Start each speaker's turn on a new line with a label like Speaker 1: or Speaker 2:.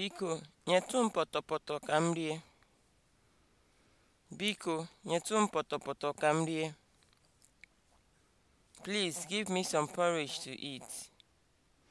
Speaker 1: Biko, nyetụ m pọtọpọtọ ka m rie. Biko, nyetụ m pọtọpọtọ ka m rie. Please give me some porridge to eat.